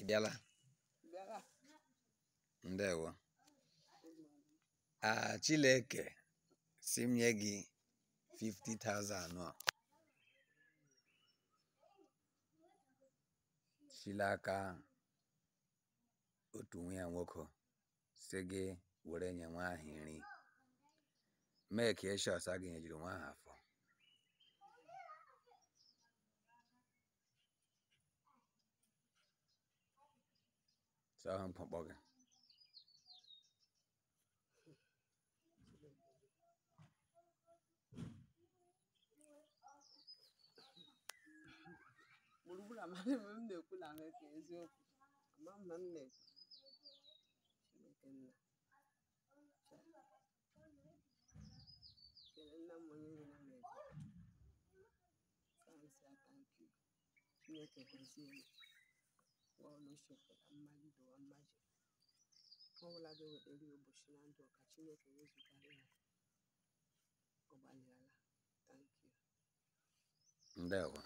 Ebiala, bịala ndewo a ah, Chileke si m nye gị 50,000 anọ aka otu nwa ya nwoke si gị were nye nwa ahụ nri mee ka eshọs nyejiri nwa ahụ Sao không phòng a 나말 계속 아마 맞네 죽겠나 자걔나 뭐니 그나 맵 산사 깐기 죽겠게 그러시 ọlụsọpụrụ mmali ụwa mmaji ọ bụla ga-ewetara ya ụbọchị na ndụ ọka Chineke wezụgara ya ọgbalịala thank you ndewo